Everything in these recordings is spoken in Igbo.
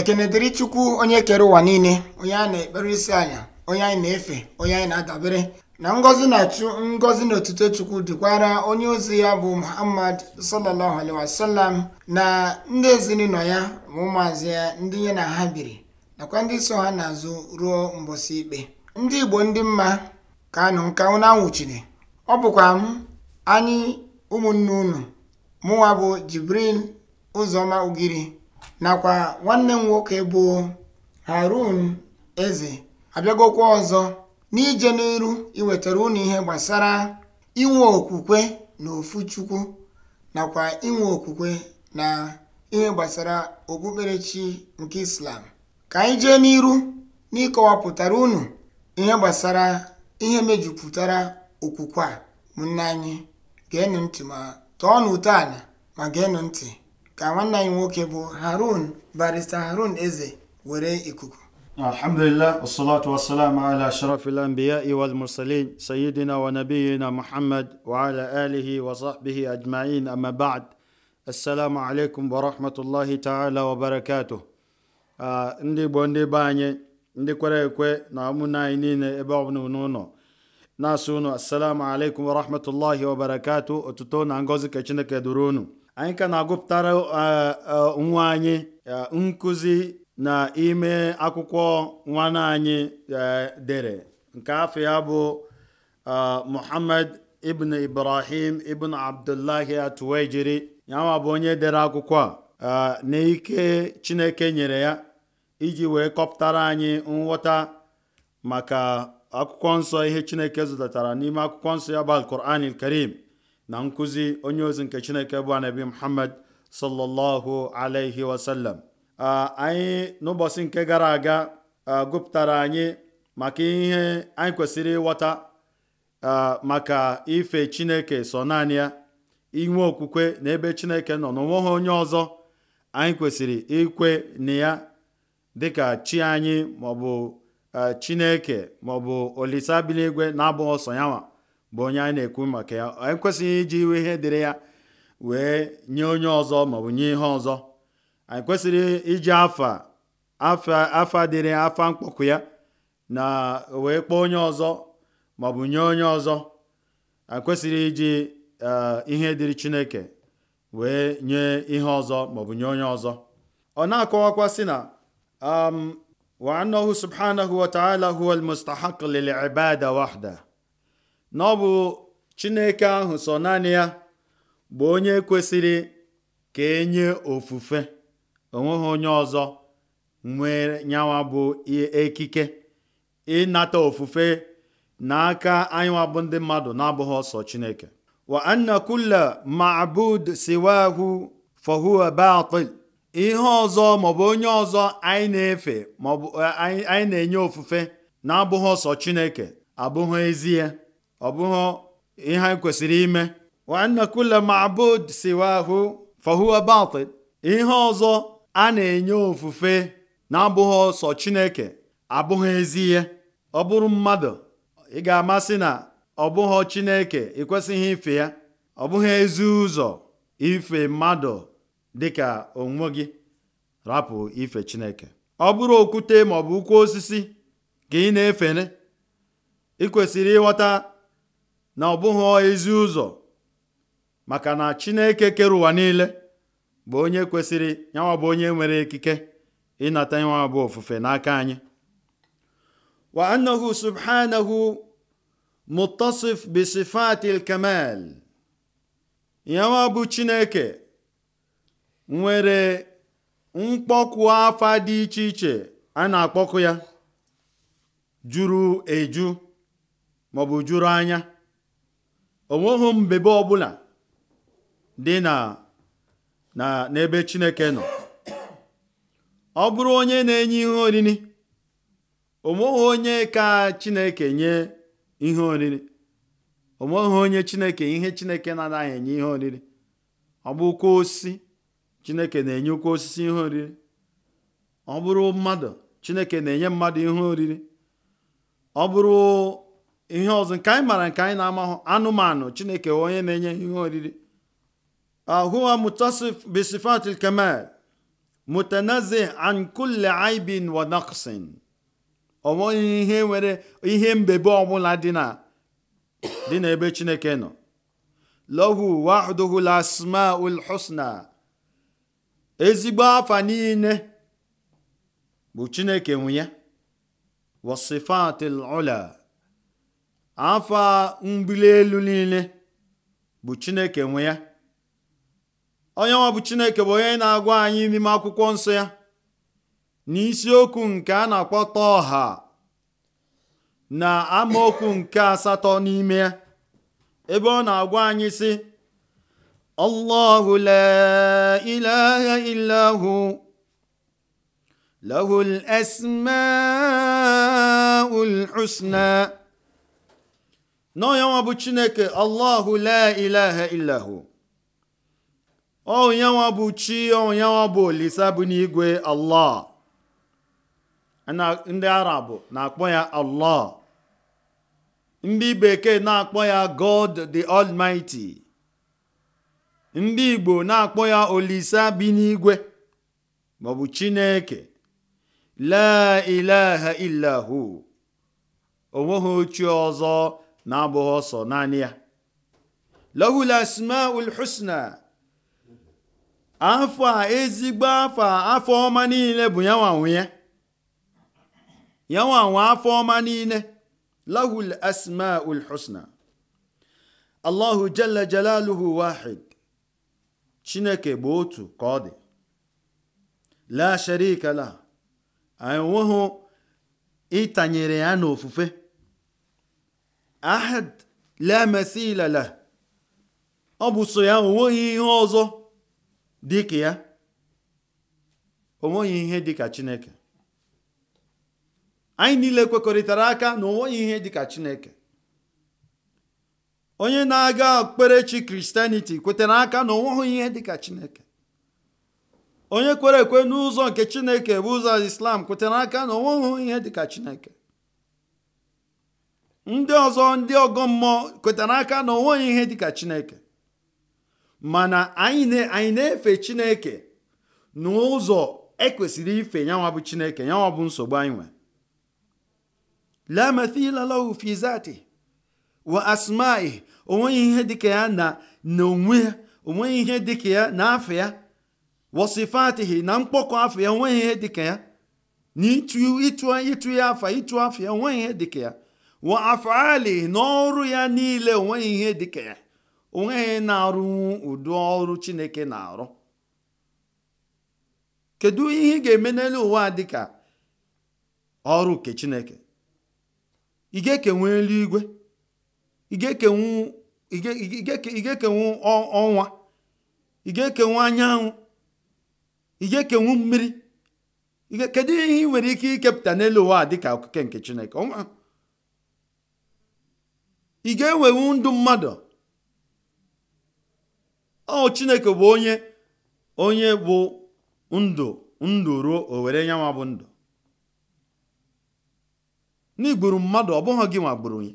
ekene dịrị chukwu onye kere ụwa niile onye anyị na-ekpere isi anya onye anyị na-efe onye anyị na-adabere na ngọzi na chu ngọzi na otuto chukwu dịkwara onye ozi ya bụ muhammad sallallahu alaihi na ndị ezinụlọ ya ma ụmụazị ya ndị ya na ha biri nakwa ndị so ha n'azụ ruo mbosi ikpe ndị igbo ndị mma ka anụ nka unu anwụchiri ọ bụkwa m anyị ụmụnne unu mụnwa bụ jibril ụzọma ugiri nakwa nwanne m nwoke bụ harun eze abịagokwa ọzọ n'ije n'iru iwetara unu ihe gbasara inwe okwukwe na ofu chukwu nakwa inwe okwukwe na ihe gbasara okpukperechi nke islam ka anyị jee n'iru n'ịkọwapụtara unu ihe gbasara ihe mejupụtara okwukwe a ụmụnne anyị geenụ ntị ma tọọ ala ma geenụ ntị ka nwanne anyị nwoke bụ harun barista harun eze were ikuku الحمد لله والصلاة والسلام على أشرف الأنبياء والمرسلين wa ala alihi wa آله وصحبه أجمعين أما بعد السلام wa ورحمة الله تعالى وبركاته ndị Igbo ndị be anyị ndị kwere ekwe na ụmụnne anyị niile ebe ọ bụla n'ụlọ na-asị unu assalamu alaikum wa otuto na ngọzi ka Chineke duru unu anyị ka na-agụpụtara e, e, nwa anyị e, nkụzi na ime akwụkwọ nwanne anyị dere nke afọ ya bụ muhammad ibn ibrahim ibn abdullahi atuwaijiri yanwa bụ onye dere akwụkwọ a na ike chineke nyere ya iji wee kọpụtara anyị nghọta maka akwụkwọ nsọ ihe chineke zụtatara n'ime akwụkwọ nsọ ya bụ alquran karim na nkụzi onye ozi nke chineke bụ anabi muhammad sallallahu alaihi wasallam anyị n'ụbọchị nke gara aga gụpụtara anyị maka ihe anyị kwesịrị ịghọta maka ife chineke sọ naanị ya inwe okwukwe na ebe chineke nọ n'onweghị onye ọzọ anyị kwesịrị ikwe na ya dịka chi anyị maọbụ chineke maọbụ olise abiligwe na-abụghị ọsọ nwa. bụ onye anyị na-ekwu maka ya anyị kwesịghị iji iwe ihe dịrị ya wee nye onye ọzọ maọbụ nye ihe ọzọ anyị kwesịrị iji afa afa afa dịrị afa mkpọkụ ya na wee kpọọ onye ọzọ maọbụ nye onye ọzọ anyị kwesịrị iji e, ihe dịrị chineke wee nye ihe ọzọ maọbụ nye onye ọzọ ọ na-akọwakwa sị na wa annahu subhanahu wa ta'ala huwa almustahaq lil ibada wahda na ọ bụ Chineke ahụ sọ naanị ya bụ onye kwesịrị ka enye ofufe onwe ha onye ọzọ nwere nyawa bụ ekike ịnata ofufe n'aka anyịnwa bụ ndị mmadụ na-abụghị ọsọ Chineke wa anna ma'bud siwahu fahuwa batil ihe ọzọ maọbụ onye ọzọ anyị na-efe maọbụ eh, anyị na-enye ofufe na-abụghị ọsọ Chineke abụghị ezie ọ bụghị ihe anyị kwesịrị ime wa ma'bud siwahu fahuwa ihe ọzọ a na-enye ofufe na-abụghị ọsọ chineke abụghị ezi ihe ọ bụrụ mmadụ ị ga-amasị na ọ bụghị chineke ịkwesịghị ife ya ọ bụghị ezi ụzọ ife mmadụ dịka onwe gị rapụ ife chineke ọ bụrụ okwute maọbụ ukwu osisi ka ị na efere ị kwesịrị ịghọta na ọ bụghị ezi ụzọ maka na chineke kere ụwa niile bụ onye kwesịrị yanwa onye nwere ekike ịnata yanwa bụ ofufe n'aka anyị wa annahu subhanahu mutasif bi sifatil kamal chineke nwere mkpọkụ afa dị iche iche a na-akpọkụ ya juru eju maọbụ juru anya onweghị mbebe ọbụla dị na na n'ebe chineke nọ ọ bụrụ onye na-enye ihe oriri onweghị onye ka chineke nye ihe oriri onweghị onye chineke ihe chineke na-anaghị enye ihe oriri ọ bụkwa osisi chineke na-enyekwa osisi ihe oriri ọ bụrụ mmadụ chineke na-enye mmadụ ihe oriri ihe ọzọ nke anyị maara nke anyị na-amahụ anụmanụ chineke onye na-enye ihe oriri huwa mutasif bisifatil kamal mutanazi an kulli aibin ihe nwere ihe mbebe ọbụla dị na dị n'ebe chineke nọ lahu wahduhu lasmaul husna ezigbo afa niile bụ chineke nwe ya wasifatil afọ a elu niile bụ chineke nwe ya onye nwa bụ chineke bụ onye na-agwa anyị n'ime akwụkwọ nsọ ya na n'isiokwu nke a na akpọta ọha na amaokwu nke asatọ n'ime ya ebe ọ na-agwa anyị sị allahu la ilaha illahu lahu al na onye nwa bụ chineke allahu la ilaha illahu onyenwa bụ chi onyenwa bụ olisa bụ n'igwe allah ndị arab na-akpọ ya e allah ndị bekee na-akpọ ya god the almighty ndị igbo na-akpọ ya e olisa bi n'igwe maọbụ chineke la ilaha illahu onweghị ochie ọzọ na-abụghị ọsọ naanị ya lahul asmaul husna afọ a ezigbo afọ afọ ọma niile bụ yanwanwe ya yanwanwe afọ ọma niile lahul asmaul husna allahu jalla jalaluhu wahid chineke bụ otu ka ọ dị la sharika la enweghị ịtanyere ya n'ofufe ahad la masila la ọ bụ so ya onweghị ihe ọzọ dịka ya onweghị ihe dịka chineke anyị niile kwekọrịtara aka na onweghị ihe dịka chineke onye na-aga okpukperechi kristianiti kwetara aka na onweghị ihe dịka chineke onye kwere ekwe n'ụzọ nke chineke bụ ụzọ islam kwetara aka na onweghị ihe dịka chineke ndị ọzọ ndị ọgọ mmụọ kwetara aka na onweghị ihe dịka chineke mana anyị na-efe chineke n'ụzọ ekwesịrị ife yanwa bụ chineke yanwa bụ nsogbu anyị nwe la wa asma'i onweghị ihe dịka ya na onwe ya onweghị ihe dịka ya na afọ ya wasifatihi na mkpọkọ afọ ya onweghị ihe dịka ya na ịtụ ya afa ịtụ afọ ya onweghị ihe dịka ya wa afali n'ọrụ ya niile onweghị ihe dịka ya onweghị na-arụnwu ụdị ọrụ chineke na-arụ kedu ihe ị ga-eme n'elu ụwa dịka ọrụ nke chineke ị ga eluigwe ị ga ọnwa ị ga anyanwụ ị ga mmiri kedu ihe ị nwere ike ikepụta n'elu ụwa dịka okike nke chineke ị ga-enwewu ndụ mmadụ ọ chineke bụ onye onye bụ ndụ ndụ ruo o were nyanwa bụ ndụ n'igburu mmadụ ọ bụghị gị nwa onye,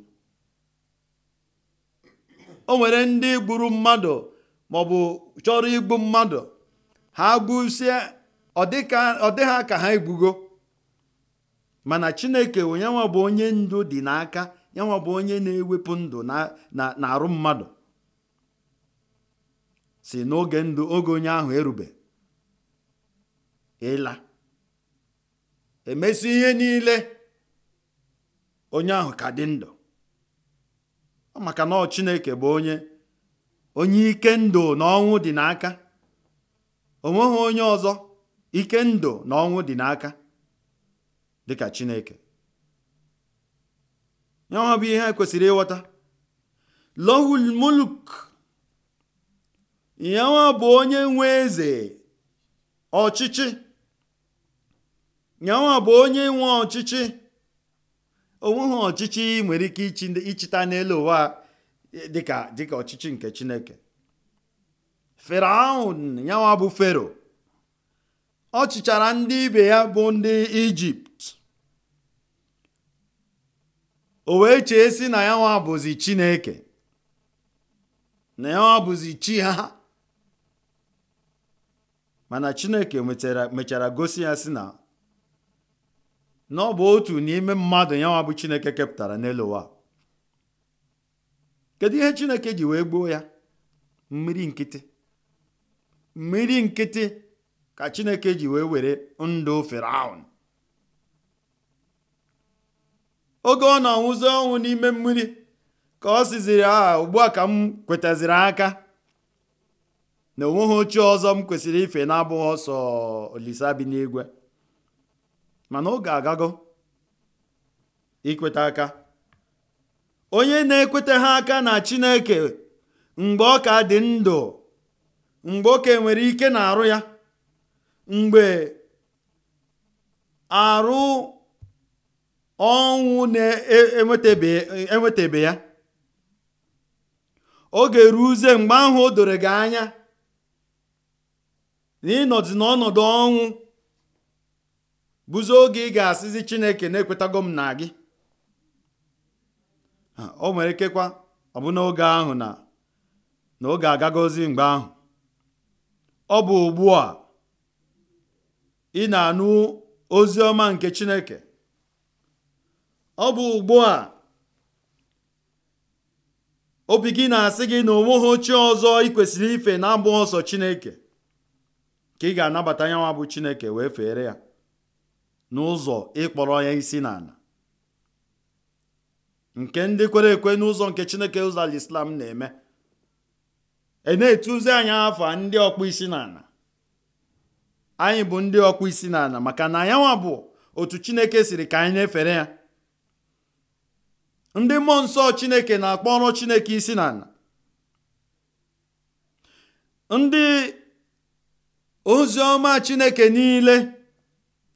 nwere ndị gburu mmadụ maọbụ chọrọ igbu mmadụ ha gbusie ọ dị ha ka ha egbugo mana chineke onye nwa bụ onye ndu dị n'aka yanwa bụ onye na-ewepụ ndụ na arụ mmadụ si n'oge ndụ oge onye ahụ erube ịla emesi ihe niile onye ahụ ka dị ndụ maka na Chineke bụ onye onye ike ndụ na ọnwụ dị n'aka onweghị onye ọzọ ike ndụ na dị n'aka dịka Chineke nyawa bụ ihe kwesịrị ịghọta e lohul muluk bụ onye nwe eze ọchịchị nyawa bụ onye nwe ọchịchị onweghị ọchịchị nwere ike ịchịta n'elu ụwa e, dịka dịka ọchịchị nke chineke feraun nyawa bụ fero ọ chịchara ndị ibe ya bụ ndị ijipt o wee chee si na ya nwa bụzi chineke na ya nwa bụzi chi ha mana chineke mechara gosi ya si na na ọ bụ otu n'ime mmadụ ya nwa bụ chineke kepụtara n'elu ụwa kedu ihe chineke ji wee gbuo ya mmiri nkịtị mmiri nkịtị ka chineke ji wee were ndụ firaun oge ọ na-anwụzi ọnwụ n'ime mmiri ka ọ siziri a ah, ugbu a ka m kwetaziri aka na onweghị ochie ọzọ m kwesịrị ife na-abụghị ọsọ olisa bi n'igwe mana oge agago ikweta aka onye na-ekweta ha aka na chineke mgbe ọ ka dị ndụ mgbe oke nwere ike na arụ ya mgbe arụ ọnwụ na-enwetabe e, ya oge uze mgbe ahụ o doro gị anya na ịnọdụ n'ọnọdụ ọnwụ bụzi oge ị ga-asịzi chineke na-ekwetago m na gị o nwere ikekwa ọ bụ ahụ na na oge agagozi mgbe ahụ ọ bụ ugbu a ị na-anụ ozi ọma nke chineke ọ bụ ugbu a obi gị na-asị gị na onweghị ochie ọzọ ị kwesịrị ife na abụ ọsọ chineke ka ị ga-anabata nyanwa bụ chineke wee fere ya n'ụzọ ịkpọrọ ya isi n'ala nke ndị kwere ekwe n'ụzọ nke chineke ụzọ alislam na-eme e na-etuzi anyị afa ndị ọkpụ isi n'ala anyị bụ ndị ọkpụ isi n'ala maka na anyanwa bụ otu chineke siri ka anyị na-efere ya ndị mmụọ nsọ chineke na-akpọrọ chineke isi n'ala ndị ozi ọma chineke niile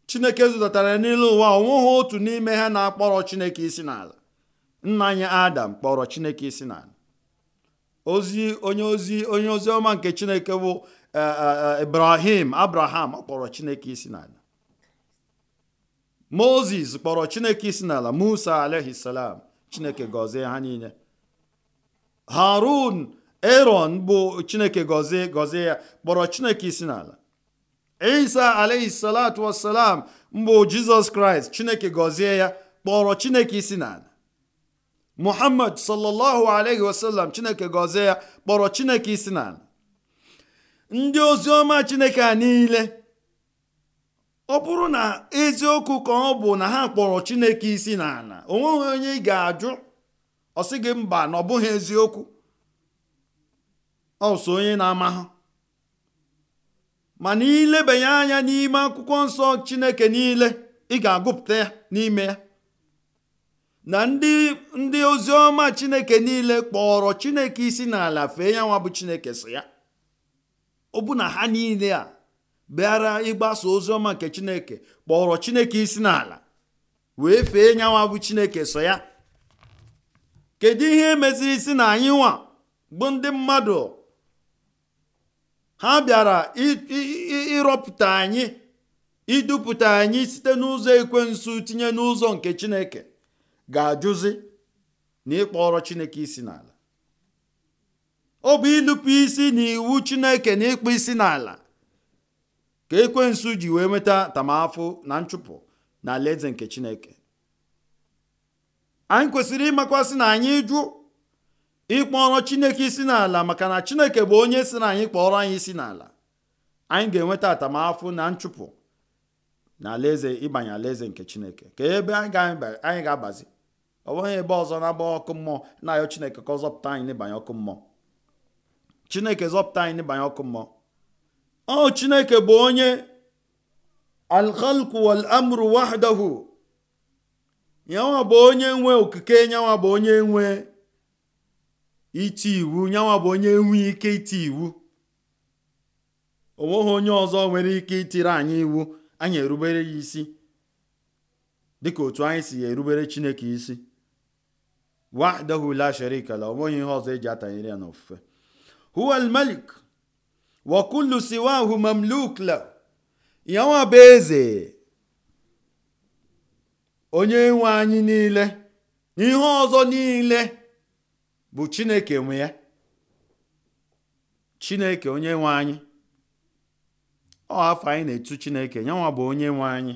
chineke zụtatara n'ile ụwa onweghị otu n'ime ha na-akpọrọ chineke isi n'ala nna anyị adam kpọrọ chineke isi n'ala ozi onye ozi onye ọma nke chineke bụ e, e, e, ibrahim abraham kpọrọ chineke isi n'ala Mozis kpọrọ chineke isi n'ala musa alaihi chineke gọzie ha niile harun eron bụ chineke gọzie gọzie ya kpọrọ chineke isi n'ala isa alayhi salatu wasalam mbụ jizọs kraịst chineke gọzie ya kpọrọ chineke isi n'ala muhammad sallallahu alayhi wasallam chineke gọzie ya kpọrọ chineke isi n'ala ndị oziọma chineke a niile ọ bụrụ na eziokwu ka ọ bụ na ha kpọrọ chineke isi n'ala o nweghị onye ị ga-ajụ ọ sị gị mba na ọ bụghị eziokwu ọ onye na-amahụ mana ilebanye anya n'ime akwụkwọ nsọ chineke niile ị ga-agụpụta ya n'ime ya na ndị ndị oziọma chineke niile kpọrọ chineke isi n'ala fee ya nwa bụ chineke so ya ọ bụ na ha niile a bịara ịgbasa ọma nke chineke kpọrọ chineke isi n'ala wee fee nyanwa bụ chineke so ya kedu ihe meziri isi na anyị nwa bụ ndị mmadụ ha bịara ịrọpụta anyị idupụta anyị site n'ụzọ ekwensu tinye n'ụzọ nke chineke ga-ajụzi na ịkpọrọ chineke isi n'ala ọ bụ ịnụpụ isi na iwu chineke na ịkpụ isi n'ala ka ekwensu ji wee nweta tamafụ na nchụpụ na alaeze nke chineke anyị kwesịrị ịmakwasị na anyị jụ ịkpọrọ chineke isi n'ala maka na chineke bụ onye si na anyị kpọrọ anyị isi n'ala anyị ga-enweta atamafụ na nchụpụ na alaeze ịbanye alaeze nke chineke ka ebe anyị ga-agbazi ọ bụghị ebe ọzọ na-agba ọkụ mmụọ na-ayọ chineke ka ọ zọpụta anyị n'ịbanye ọkụ mmụọ chineke zọpụta anyị n'ịbanye ọkụ mmụọ ọ chineke bụ onye alkhalku wal amru wahdahu nyanwa bụ onye nwe okike nyanwa bụ onye nwe iti iwu nyanwa bụ onye nwe ike iti iwu onweghị onye ọzọ nwere ike itiri anyị iwu anyị erubere ya isi dịka otu anyị si ya erubere chineke isi wahdahu la sharika la onweghị ihe ọzọ eji atanyere ya n'ofufe huwa wakulu siwahu mamluk la ya bụ eze onye nwe anyị niile na ihe ọzọ niile bụ chineke nwe ya chineke onye nwe anyị ọ afọ anyị na-etu chineke yanwa bụ onye nwe anyị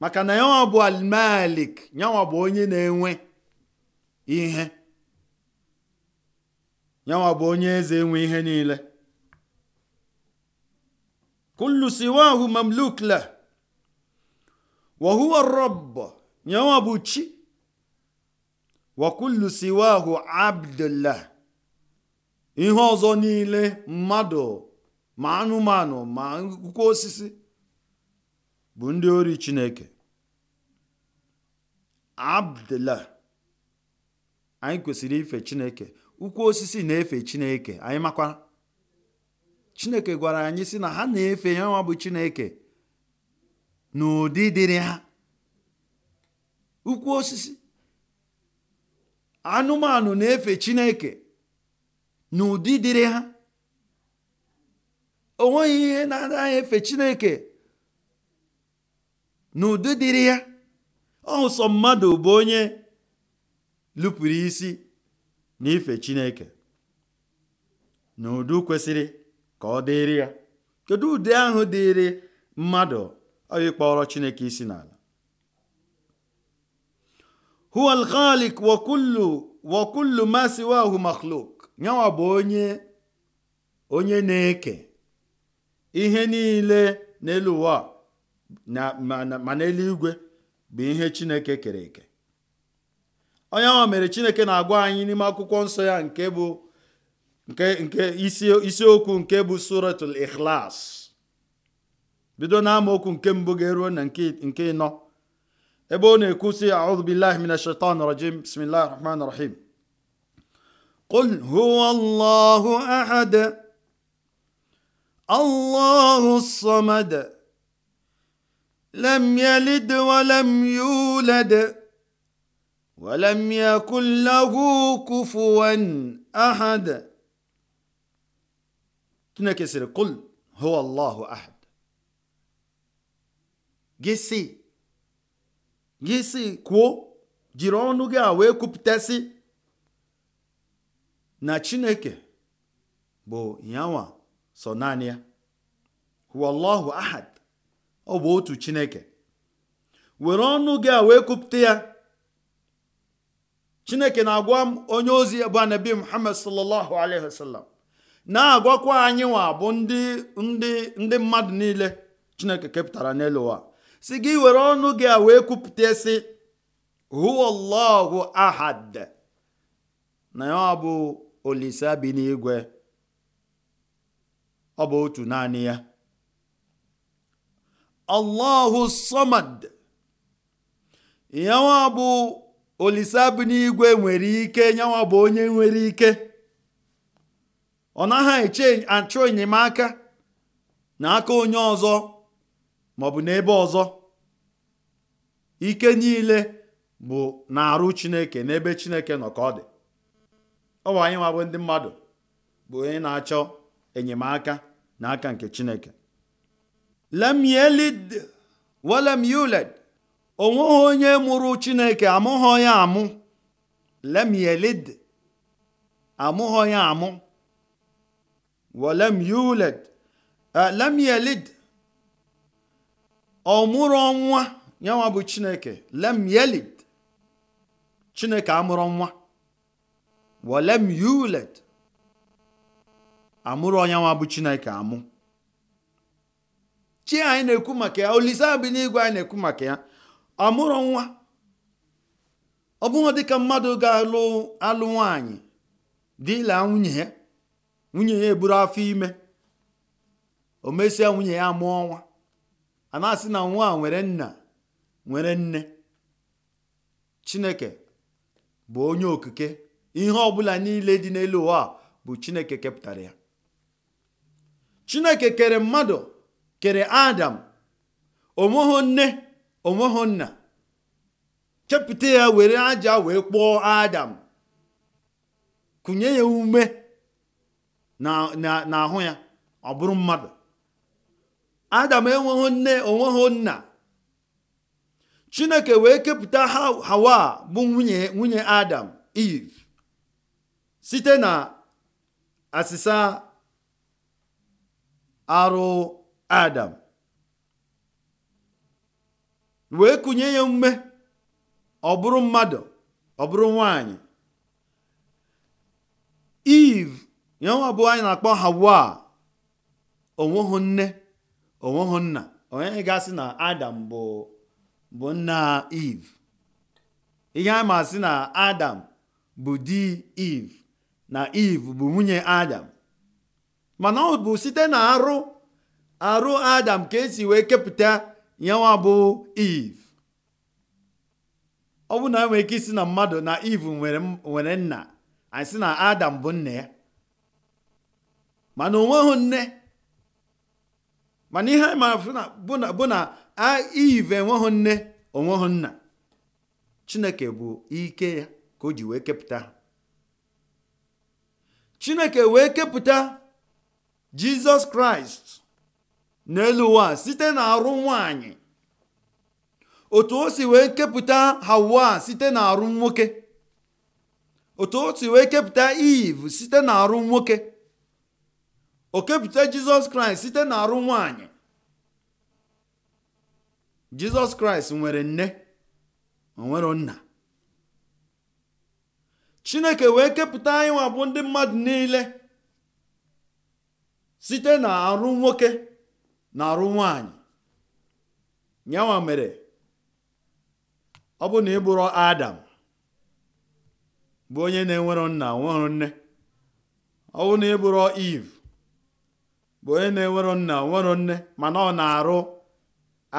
maka na yanwa bụ almalik yanwa bụ onye na-enwe ihe yanwa bụ onye eze enwe ihe niile kullu siwahu mamluk la wa rabb yanwa bụ chi wa kullu siwahu abdullah ihe ọzọ niile mmadụ ma anụmanụ ma akwụkwọ osisi bụ ndị ori chineke abdullah anyị kwesịrị ife chineke ukwu osisi na-efe chineke anyị makwa chineke gwara anyị sị na ha na-efe ya nwa bụ chineke n'ụdị dịrị ha ukwu osisi anụmanụ na-efe chineke n'ụdị dịrị ha o nweghị ihe na-anaghị efe chineke n'ụdị dịrị ya ọsọ mmadụ bụ onye lụpụrụ isi n'ife chineke na udu kwesịrị ka ọ dịrị ya kedu ụdị ahụ dịrị mmadụ ịkpọrọ chineke isi n'ala huwa al-khaliq wa kullu wa nyawa bụ onye onye na-eke ihe niile n'elu ụwa ma n'eluigwe bụ ihe chineke kere eke onye ahụ mere chineke na-agwa anyị n'ime akwụkwọ nsọ ya nke bụ nke nke isiokwu nke bụ suratul ikhlas bido na amaokwu nke mbụ ga-eruo na nke ịnọ ebe ọ na-ekwu si a'udhu billahi minash shaitan rajim bismillahir rahmanir rahim قل هو الله الله الصمد لم يلد ولم يولد ولم يكن له كفوا أحد تنكسر قل هو الله أحد gịsị gịsị kwuo jiri ọnụ gị a wee na chineke bụ yanwa so naanị ahad ọ bụ otu chineke were ọnụ gị wee ya chineke na-agwa m onye ozi bụ anabi muhammad sallallahu alaihi wasallam na-agwakwa anyị nwa bụ ndị ndị ndị mmadụ niile chineke kepụtara n'elu ụwa si gị were ọnụ gị a wee kwupụta sị huwallahu ahad na ya bụ olise bi n'igwe ọ bụ otu naanị ya allahu somad ya olise n'igwe nwere ike nyanwa bụ onye nwere ike ọ naghị eche enyemaka na aka onye ọzọ maọbụ n'ebe ọzọ ike niile bụ na-arụ chineke n'ebe chineke nọ ka ọ dị ọ bụ anyị ndị mmadụ bụ onye na-achọ enyemaka na aka nke chineke lam onweghị onye mụrụ chineke amụghọ ya amụ lem yelid amụghọ ya amụ welem yuled lem yelid ọ mụrụ nwa yanwa bụ chineke lem yelid chineke amụrụ nwa welem yuled amụrụ ọnyanwa bụ chineke amụ chi anyị na-ekwu maka ya olise bụ n'igwe anyị na-ekwu maka ya ọmụrụ nwa ọ bụghị dịka mmadụ ga-alụ alụ nwanyị dịla nwunye ya nwunye ya eburu afọ ime o mesịa nwunye ya mụọ nwa a na-asị na nwa nwere nna nwere nne chineke bụ onye okike ihe ọbụla niile dị n'elu ụwa bụ chineke kepụtara ya chineke kere mmadụ kere adam o nne onweghị nna chepụta ya were aja wee kpụọ adam kụnye ya ume n'ahụ ya ọ bụrụ mmadụ adam enweghị nne nna chineke wee kepụta hawa bụ nwunye nwunye adam eve site na asịsa arụ adam wee kụnye ya ume ọ bụrụ mmadụ ọ bụrụ nwanyị iv ya nwa anyị na-akpọ hawa onweghị nne onweghị nna onye ga-asị na adam bụ bụ nna iv ihe a masị na adam bụ di iv na iv bụ nwunye adam mana ọ bụ site na arụ arụ adam ka esi wee kepụta yanwa bụ Eve ọ bụ na enwere ike isi na mmadụ na Eve nwere nna anyị sị na Adam bụ nna ya mana onweghị nne mana ihe anyị mara bụ na Eve enweghị nne onweghị nna Chineke bụ ike ya ka o ji wee kepụta Chineke wee kepụta Jizọs Kraịst n'elu ụwa site na arụ nwanyị otu o si wee kepụta hawa site na arụ nwoke otu o si wee kepụta eve site na arụ nwoke o kepụta jizọs kraịst site na arụ nwanyị jizọs kraịst nwere nne nwere nna chineke wee kepụta anyị bụ ndị mmadụ niile site na arụ nwoke na-arụ nwaanyị nyanwa mere ọ bụ na ị bụrụ adam bụ onye na-enwero nna nwero nne ọ bụ na ị bụrụ Iv, bụ onye na-enwero nna nwero nne mana ọ na-arụ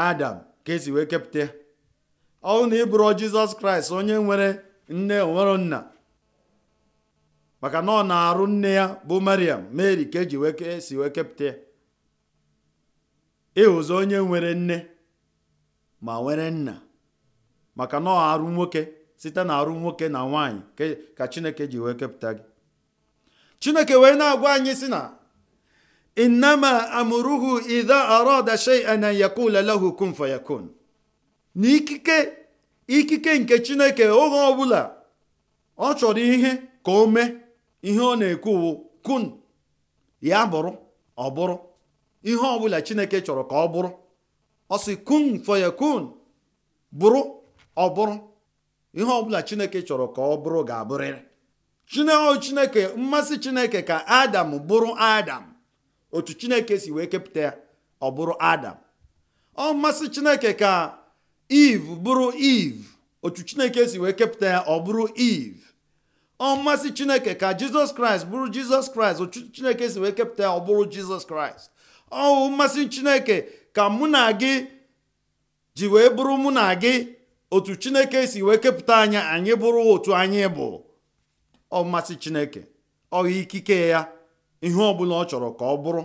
adam ka esi wee kepụta ya ọ bụ na ị bụrụ jizọs kraịst onye nwere nne nwero nna maka na ọ na-arụ nne ya bụ mariam Meri ka eji wee esi wee kepụta ya ịhụzọ onye nwere nne ma nwere nna maka na ọ arụ nwoke site na arụ nwoke na nwaanyị ka chineke ji wee kepụta gị chineke wee na-agwa anyị si na innama amụruhu idha arada shay'an an yakula lahu kun fayakun Na ikike nke chineke oge ọbụla ọ chọrọ ihe ka o mee ihe ọ na-ekwu kun ya bụrụ ọ bụrụ ihe ọbụla chineke chọrọ ka ọ bụrụ ọ sị kun fayakun bụrụ ọ bụrụ ihe ọbụla chineke chọrọ ka ọ bụrụ ga-abụrịrị chineo chineke mmasị chineke ka adam bụrụ adam otu chineke si wee kepụta ya ọ bụrụ adam ọ mmasị chineke ka eve bụrụ eve otu chineke si wee kepụta ya ọ bụrụ eve ọ mmasị chineke ka jizọs kraịst bụrụ jizọs kraịst otu chineke si wee kepụta ya ọ bụrụ jizọs kraịst ọwụ mmasị chineke ka mụ na gị ji wee bụrụ mụ na gị otu chineke si wee kepụta anya anyị bụrụ otu anyị bụ ọ mmasị chineke ọ ikike ya ihe ọbụla ọ chọrọ ka ọ bụrụ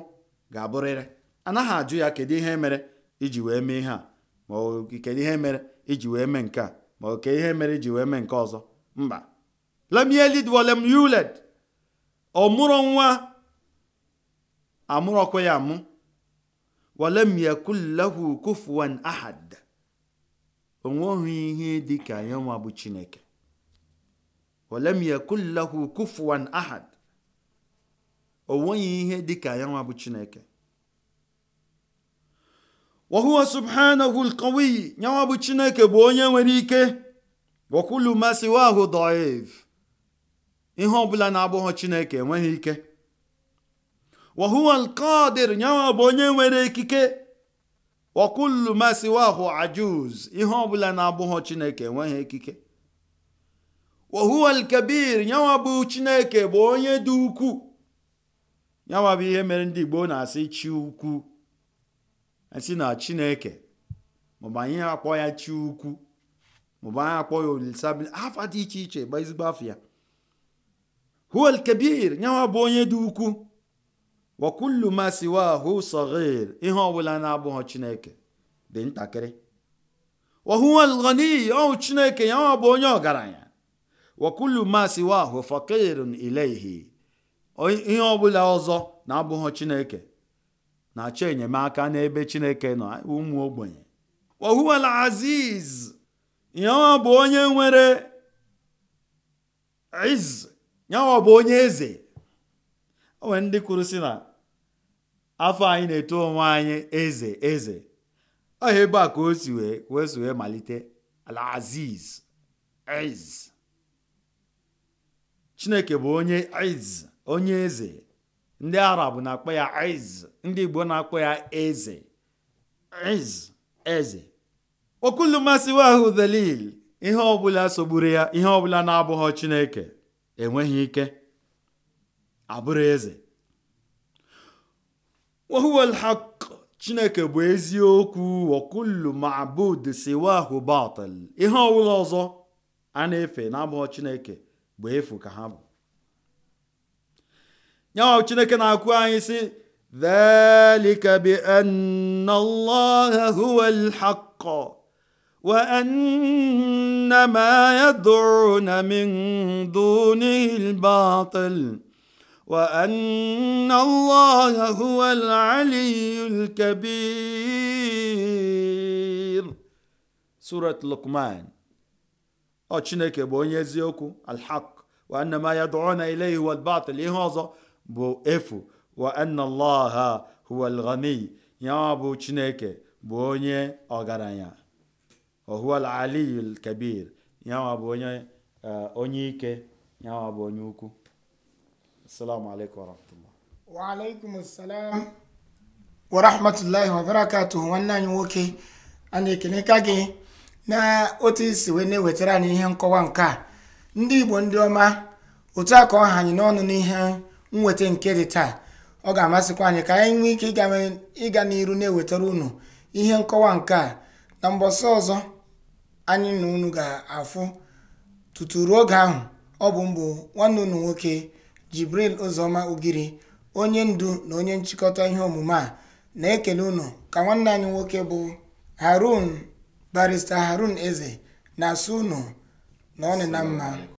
ga-abụrịrị anaghị ajụ ya kedu ihe mere iji wee mee ihe a ihe mere iji wee mee nke a ma kedu ihe mere iji wee mee nke ọzọ mba lam ọ mụrụ nwa amụrọkwa ya amụ walam yakun lahu kufuwan ahad onweghị ihe dị ka ya nwa bụ chineke walam yakun lahu kufuwan ahad ihe dị ka ya nwa bụ chineke bụ chineke bụ onye nwere ike wakulu masiwahụ daif ihe ọbụla na-abụghị chineke enweghị ike wahuwa qadir nyawa bụ onye nwere ikike wakullu masiwahụ ajuz ihe ọbụla na-abụghọ chineke enweghị ikike wahuwa alkabir nyawa bụ chineke bụ onye dị ukwu nyawa bụ ihe mere ndị igbo na-asị chi ukwu esi na chineke maọbụ anyị akpọ ya chi ukwu maọbụ anyị akpọ ya olisabi afa dị iche iche bụ ezigbo afọ ya Huwal alkabir nyawa bụ onye dị ukwuu. wakullu ma siwahu saghir ihe ọbụla na-abụghị chineke dị ntakịrị wahuwa alghani ọhụ chineke ya ọ bụ onye ọgaranya wakullu ma siwahu faqirun ilayhi ihe ọbụla ọzọ na-abụghị chineke na-achọ enyemaka n'ebe chineke nọ ụmụ ogbenye wahuwa alaziz ihe ọ bụ onye nwere iz ya ọ bụ onye eze o nwere ndị kwuru si na afọ anyị na-eto onwe anyị eze eze ọhịa ebe a ka o si wee wee malite Al-Aziz ez Chineke bụ onye ez onye eze ndị Arab na-akpọ ya ez ndị Igbo na-akpọ ya eze ez eze okulu mmasịwa ahụ delil ihe ọbụla sogburu ya ihe ọbụla na-abụghọ Chineke enweghị ike abụrụ eze wahuwal haq chineke bụ eziokwu wakullu ma'bud siwahu batil ihe ọbụla ọzọ a na-efe n'abụghọ chineke bụ efu ka ha bụ nyawa chineke na akwụ anyị si dhalika bi anna allaha huwa alhaq wa anna ma yad'una min dunihi وأن الله هو العلي الكبير لقمان ọ chineke bụ onye eziokwu alhaq wa anna ma ihe ọzọ bụ efu wa anna allaha huwa alghani ya bụ chineke bụ eh, onye ọgaranya wa ike ya السلام عليكم ورحمة الله وعليكم السلام ورحمة الله وبركاته وانا نwoke a na gị na otu isi wee na-ewetara anyị ihe nkọwa nke a ndị Igbo ndị ọma otu a ka ọ ha anyị n'ọnụ n'ihe nweta nke dị taa ọ ga-amasịkwa anyị ka anyị nwee ike ịga n'iru na-ewetara unu ihe nkọwa nke a na mbọsị ọzọ anyị na unu ga-afụ tutu ruo oge ahụ ọ bụ mbụ nwanne unu nwoke Jibril ozoma Ugiri, onye ndu na onye nchịkọta ihe omume a, na-ekele unu ka nwanne anyị nwoke bụ harun barista Harun Eze na asụ unu na ọ na mma.